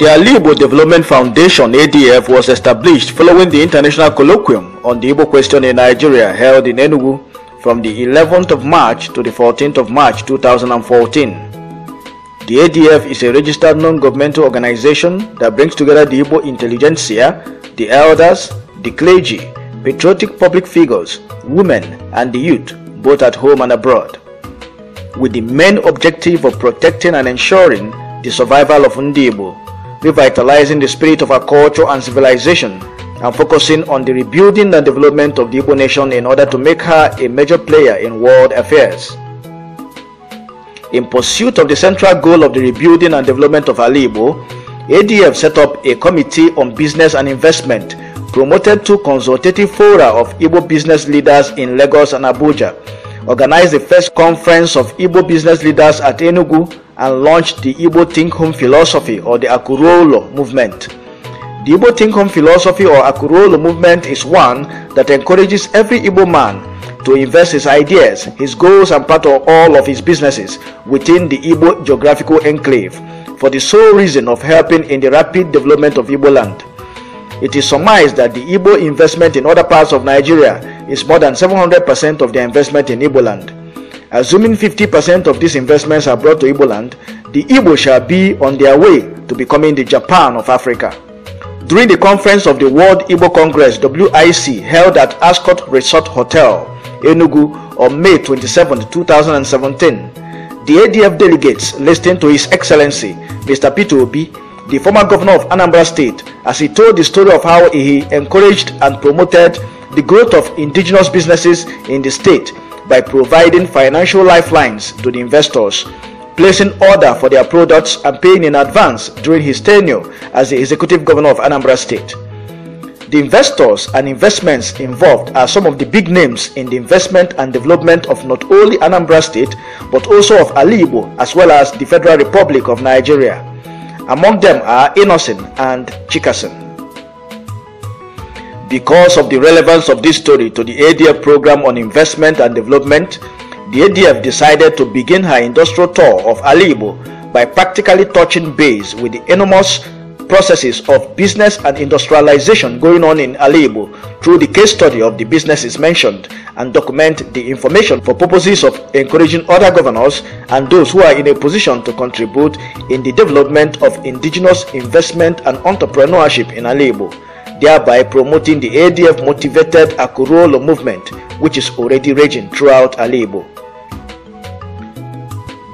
The Alibo Development Foundation ADF was established following the international colloquium on the Igbo question in Nigeria held in Enugu from the 11th of March to the 14th of March 2014. The ADF is a registered non-governmental organization that brings together the Igbo intelligentsia, the elders, the clergy, patriotic public figures, women and the youth both at home and abroad. With the main objective of protecting and ensuring the survival of Ndibo revitalizing the spirit of our culture and civilization, and focusing on the rebuilding and development of the Igbo nation in order to make her a major player in world affairs. In pursuit of the central goal of the rebuilding and development of Ali Igbo, ADF set up a committee on business and investment promoted two consultative fora of Igbo business leaders in Lagos and Abuja, organized the first conference of Igbo business leaders at Enugu, and launched the Igbo Think Home philosophy or the Akurolo movement. The Igbo Think Home philosophy or Akurolo movement is one that encourages every Igbo man to invest his ideas, his goals, and part of all of his businesses within the Igbo geographical enclave for the sole reason of helping in the rapid development of Igbo land. It is surmised that the Igbo investment in other parts of Nigeria is more than 700% of their investment in Igbo land. Assuming 50% of these investments are brought to Igbo land, the Igbo shall be on their way to becoming the Japan of Africa. During the conference of the World Igbo Congress WIC held at Ascot Resort Hotel, Enugu on May 27, 2017, the ADF delegates listened to His Excellency Mr. Peter Obi, the former governor of Anambra State, as he told the story of how he encouraged and promoted the growth of indigenous businesses in the state by providing financial lifelines to the investors, placing order for their products and paying in advance during his tenure as the executive governor of Anambra State. The investors and investments involved are some of the big names in the investment and development of not only Anambra State but also of Alibo as well as the Federal Republic of Nigeria. Among them are Innocent and Chikasen. Because of the relevance of this story to the ADF program on investment and development, the ADF decided to begin her industrial tour of Alibo by practically touching base with the enormous processes of business and industrialization going on in Alibo through the case study of the businesses mentioned and document the information for purposes of encouraging other governors and those who are in a position to contribute in the development of indigenous investment and entrepreneurship in Alibo thereby promoting the ADF motivated Akurolo movement, which is already raging throughout Alebo.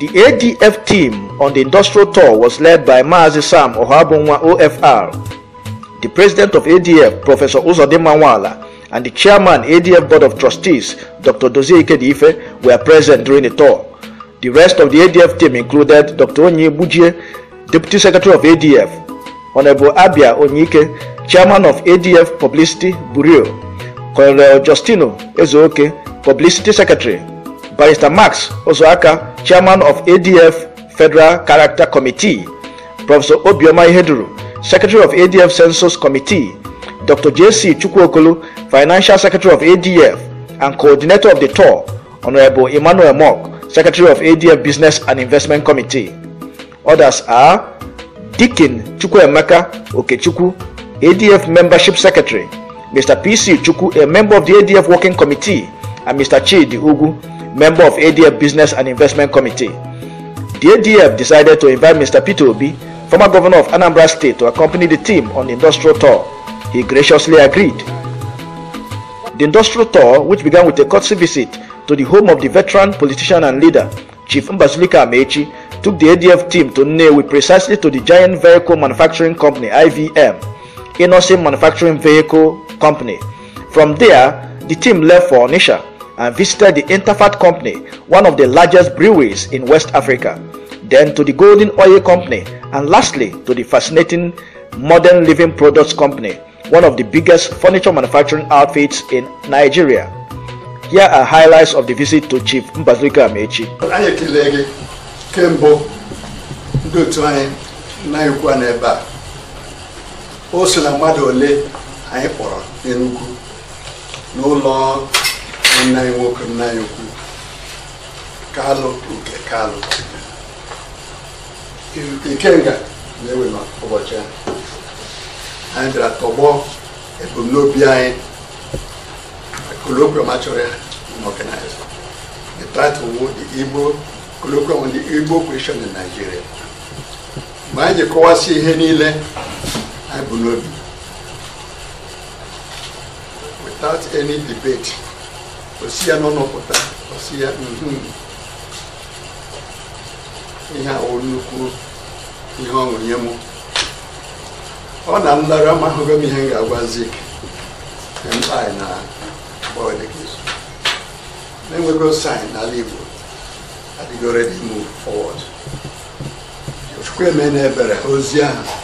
The ADF team on the industrial tour was led by Maazi Sam Ohabunwa OFR, the president of ADF, Professor Uzode Mawala, and the chairman ADF Board of Trustees, Dr. Dozie Ikedife, were present during the tour. The rest of the ADF team included Dr. Onye Bujie, Deputy Secretary of ADF, Honorable Abia Onyike, chairman of ADF Publicity Bureau, Colonel Justino Ezeoke, Publicity Secretary, Barrister Max Ozoaka, Chairman of ADF Federal Character Committee, Professor Obioma Iheduru, Secretary of ADF Census Committee, Dr. J.C. Chukwokolo, Financial Secretary of ADF and Coordinator of the tour, Honorable Emmanuel Mock, Secretary of ADF Business and Investment Committee. Others are Dikin Chukwemeka Okechukwu, ADF Membership Secretary, Mr. PC Chuku, a member of the ADF Working Committee, and Mr. Chidi Ugu, member of ADF Business and Investment Committee. The ADF decided to invite Mr. Peter Obi, former governor of Anambra State, to accompany the team on the industrial tour. He graciously agreed. The industrial tour, which began with a courtesy visit to the home of the veteran politician and leader, Chief Mbazulika Amechi, took the ADF team to Nnewi precisely to the giant vehicle manufacturing company IVM Inosim Manufacturing Vehicle Company. From there, the team left for Onisha and visited the Interfat Company, one of the largest breweries in West Africa, then to the Golden Oil Company, and lastly to the fascinating Modern Living Products Company, one of the biggest furniture manufacturing outfits in Nigeria. Here are highlights of the visit to Chief Mbazulika Amechi. anyị o so na mmadụ ole anyị kpọrọ n'Enugu n'ụlọ nna anyị nwoke nna anyị ukwu Kalu nke Kalu Ikenga na-ewe n'ụbọchị ya anyị bịara tọgbọ ebumnobi anyị colloquium achọrọ ya n'ọganiza the title wo the Igbo colloquium the Igbo question in Nigeria mgbe anyị ji kọwasị ihe niile anyị bụ n'obi without any debate osi ya n'ọnọpụta osi ya ihe awụ nnukwu ihe ọṅụ nye m ọ na nlara amahụgo m ihe m ga-agwazi mkpa anyị na na-enwego sain n'ala Igbo adịgo ready move forward na Ebere ozi ahụ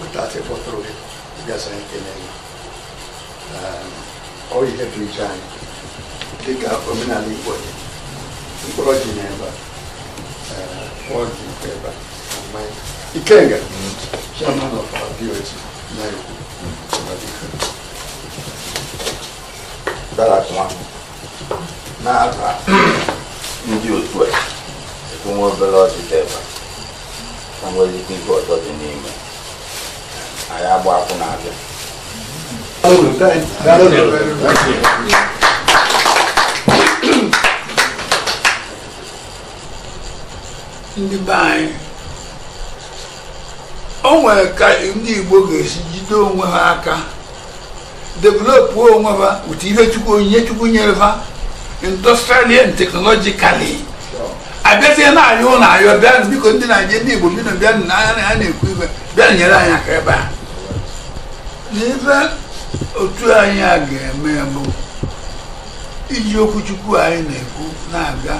portate fossero gasate nei uh, è africani ehm, che capo nella lingua di oggi ne va eh, oggi ne va ormai i kenga ci hanno fatto più e ci hanno fatto dara kuma na aka ndị otu a ekwuwe obere ọchịchị ebe ha nwere ike ibu ọtọ dị anyị agba akwụna abịa ndị be anyị o nwere ka ndị Igbo ga-esi jide onwe ha aka developu onwe ha otu ihe chukwu onyinye chukwu nyere ha industrially and technologically abịazie na ayọ na ayọ bịa biko ndị Naịjirịa ndị Igbo bi na bịa n'anya na ya na-ekwu ibe bịa nyere anyị aka ebe a n'ife otu anyị a ga-eme bụ iji okwuchukwu anyị na-ekwu na-aga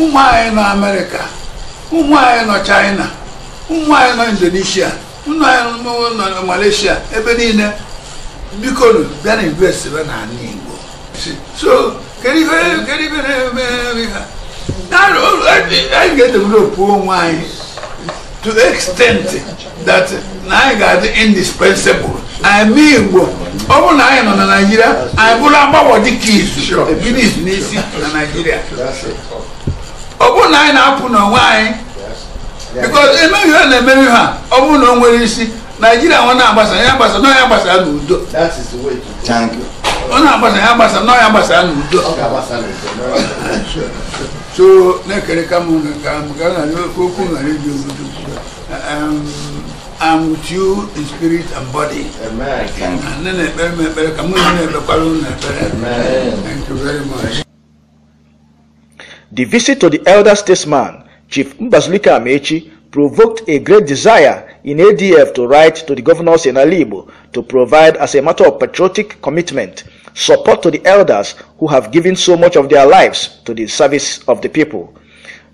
ụmụ anyị nọ amerịka ụmụ anyị nọ chaịna ụmụ anyị nọ indonesia ụmụ anyị nọ malaysia ebe niile biko bịa na invest n'ala igbo so kedu ife na-eme ha anyị ga-edevelopu onwe anyị to the extent that na anyị ga-adị indispensable anyị igbo ọ bụrụ na anyị nọ na naijiria anyị bụrụ agbagwọ dịka izu ebido izu n'isi na naijiria ọ bụrụ na anyị na-apụ n'onwe anyị because emeghị ihe na-emeghị ha ọ bụrụ na o nwere isi naijiria nwe na-agbasa ya gbasa nọ ya agbasa n'udo ọ na-agbasa ya agbasa nọ ya agbasa n'udo so na ka m ga-adị okwu ghara iji obodo um, I'm with you in spirit and body. Amen. Thank you very much. The visit to the elder statesman, Chief Mbazulika Amechi, provoked a great desire in ADF to write to the governors in Alibo to provide, as a matter of patriotic commitment, support to the elders who have given so much of their lives to the service of the people.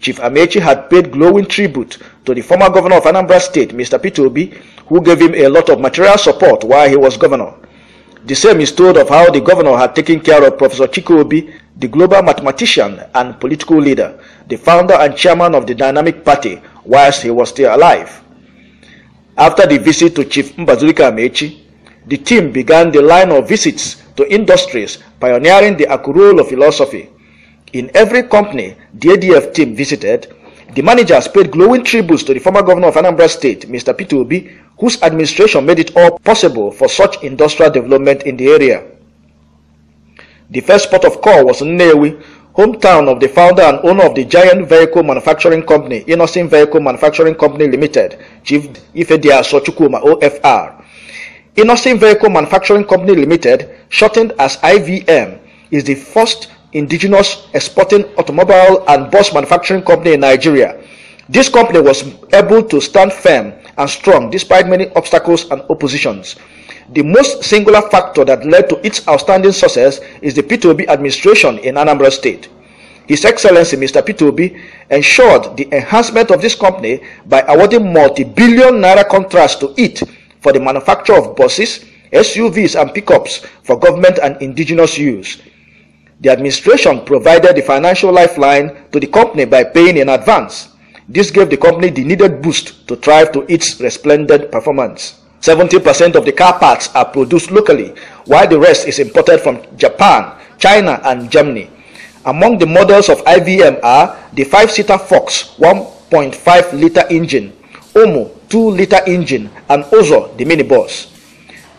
Chief Amechi had paid glowing tribute to the former governor of Anambra State, Mr. Peter Obi, who gave him a lot of material support while he was governor. The same is told of how the governor had taken care of Professor Chiku Obi, the global mathematician and political leader, the founder and chairman of the Dynamic Party, whilst he was still alive. After the visit to Chief Mbazulika Amechi, the team began the line of visits to industries pioneering the Akurulo philosophy. In every company the ADF team visited, the managers paid glowing tributes to the former governor of Anambra State, Mr. Peter Obi, whose administration made it all possible for such industrial development in the area. The first port of call was Nnewi, hometown of the founder and owner of the giant vehicle manufacturing company, Innocent Vehicle Manufacturing Company Limited, Chief Ifedia Sochukuma, OFR. Innocent Vehicle Manufacturing Company Limited, shortened as IVM, is the first indigenous exporting automobile and bus manufacturing company in Nigeria. This company was able to stand firm and strong despite many obstacles and oppositions. The most singular factor that led to its outstanding success is the P2B administration in Anambra State. His Excellency Mr. P2B ensured the enhancement of this company by awarding multi-billion naira contracts to it for the manufacture of buses, SUVs and pickups for government and indigenous use. The administration provided the financial lifeline to the company by paying in advance. This gave the company the needed boost to thrive to its resplendent performance. 70% of the car parts are produced locally, while the rest is imported from Japan, China, and Germany. Among the models of IVM are the 5-seater Fox 1.5-liter engine, Omo 2-liter engine, and Ozo the minibus.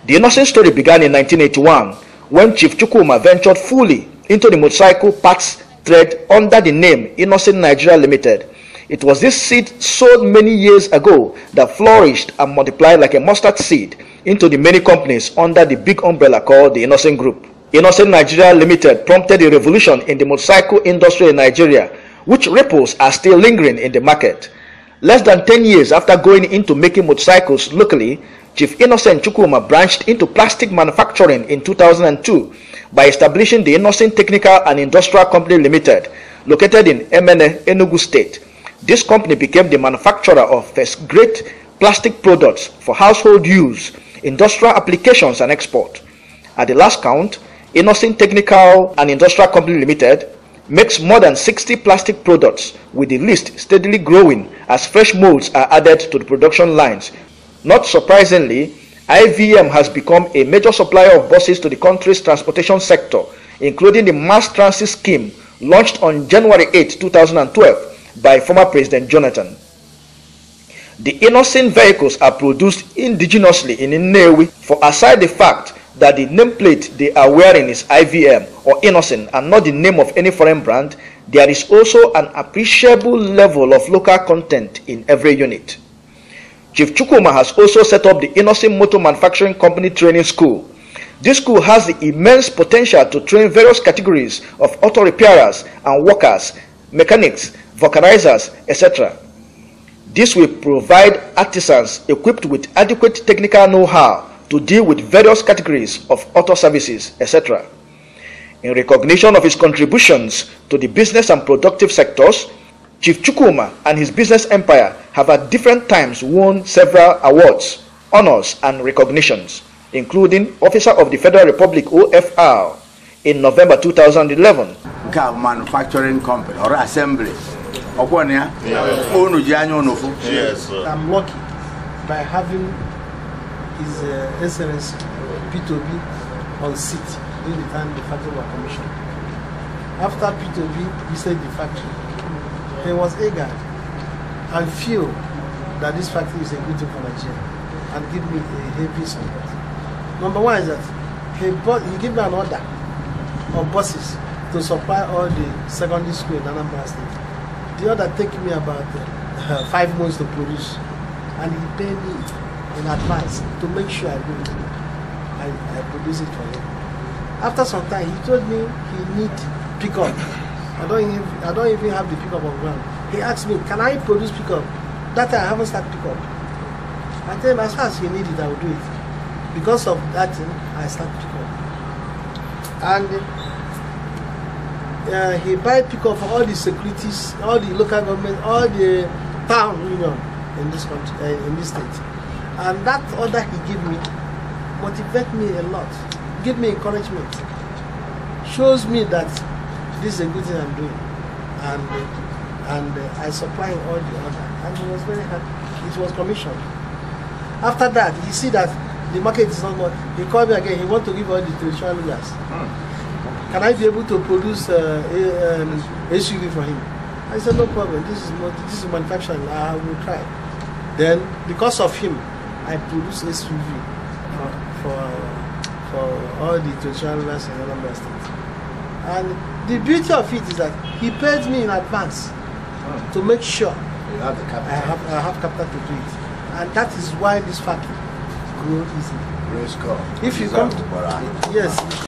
The innocent story began in 1981 when Chief Chukuma ventured fully into the motorcycle parts thread under the name Innocent Nigeria Limited. It was this seed sold many years ago that flourished and multiplied like a mustard seed into the many companies under the big umbrella called the Innocent Group. Innocent Nigeria Limited prompted a revolution in the motorcycle industry in Nigeria, which ripples are still lingering in the market. Less than 10 years after going into making motorcycles locally, Chief Innocent Chukuma branched into plastic manufacturing in 2002 by establishing the Innocent Technical and Industrial Company Limited, located in Emene, Enugu State. This company became the manufacturer of great plastic products for household use, industrial applications and export. At the last count, Innocent Technical and Industrial Company Limited makes more than 60 plastic products, with the list steadily growing as fresh molds are added to the production lines. Not surprisingly, IVM has become a major supplier of buses to the country's transportation sector, including the mass transit scheme launched on January 8, 2012 by former President Jonathan. The innocent vehicles are produced indigenously in Nnewi for aside the fact that the nameplate they are wearing is IVM or innocent and not the name of any foreign brand, there is also an appreciable level of local content in every unit. Chief Chukuma has also set up the Innocent Motor Manufacturing Company Training School. This school has the immense potential to train various categories of auto repairers and workers, mechanics, vulcanizers, etc. This will provide artisans equipped with adequate technical know-how to deal with various categories of auto services, etc. In recognition of his contributions to the business and productive sectors, Chief Chukuma and his business empire have at different times won several awards, honors, and recognitions, including Officer of the Federal Republic OFR in November 2011. Car manufacturing company or assembly. Yes, I'm lucky by having His uh, Excellency P2B on seat during the time the factory was commissioned. After P2B, we visited the factory. there was eager and feel that this factory is a good thing for Nigeria and give me a heavy support. Number one is that he, bought, he gave me an order of buses to supply all the secondary school in Anambra State. The order take me about uh, five months to produce and he paid me in advance to make sure I do it. I, I produce it for him. After some time, he told me he need pick up. I don't even I don't even have the pickup on ground. He asked me, can I produce pickup? That I haven't started pickup. I tell him as far as he need it, I will do it. Because of that thing, I started pickup. And uh, he buy pickup for all the securities, all the local government, all the town union in this country, uh, in this state. And that order he gave me motivate me a lot, give me encouragement, shows me that this is a good thing I'm doing. And, and uh, I supply all the order. And he was very happy. It was commissioned. After that, he see that the market is not good. He called me again. He want to give all the traditional leaders. Mm. Can I be able to produce uh, a, um, SUV for him? I said, no problem. This is not, this is manufacturing. I will try. Then, because of him, I produced SUV for, for, for all the traditional leaders in other states. And the beauty of it is that he paid me in advance hmm. to make sure have I, have, I have capital to do it. And that is why this factory grew easily. Praise God. If you come to, yes,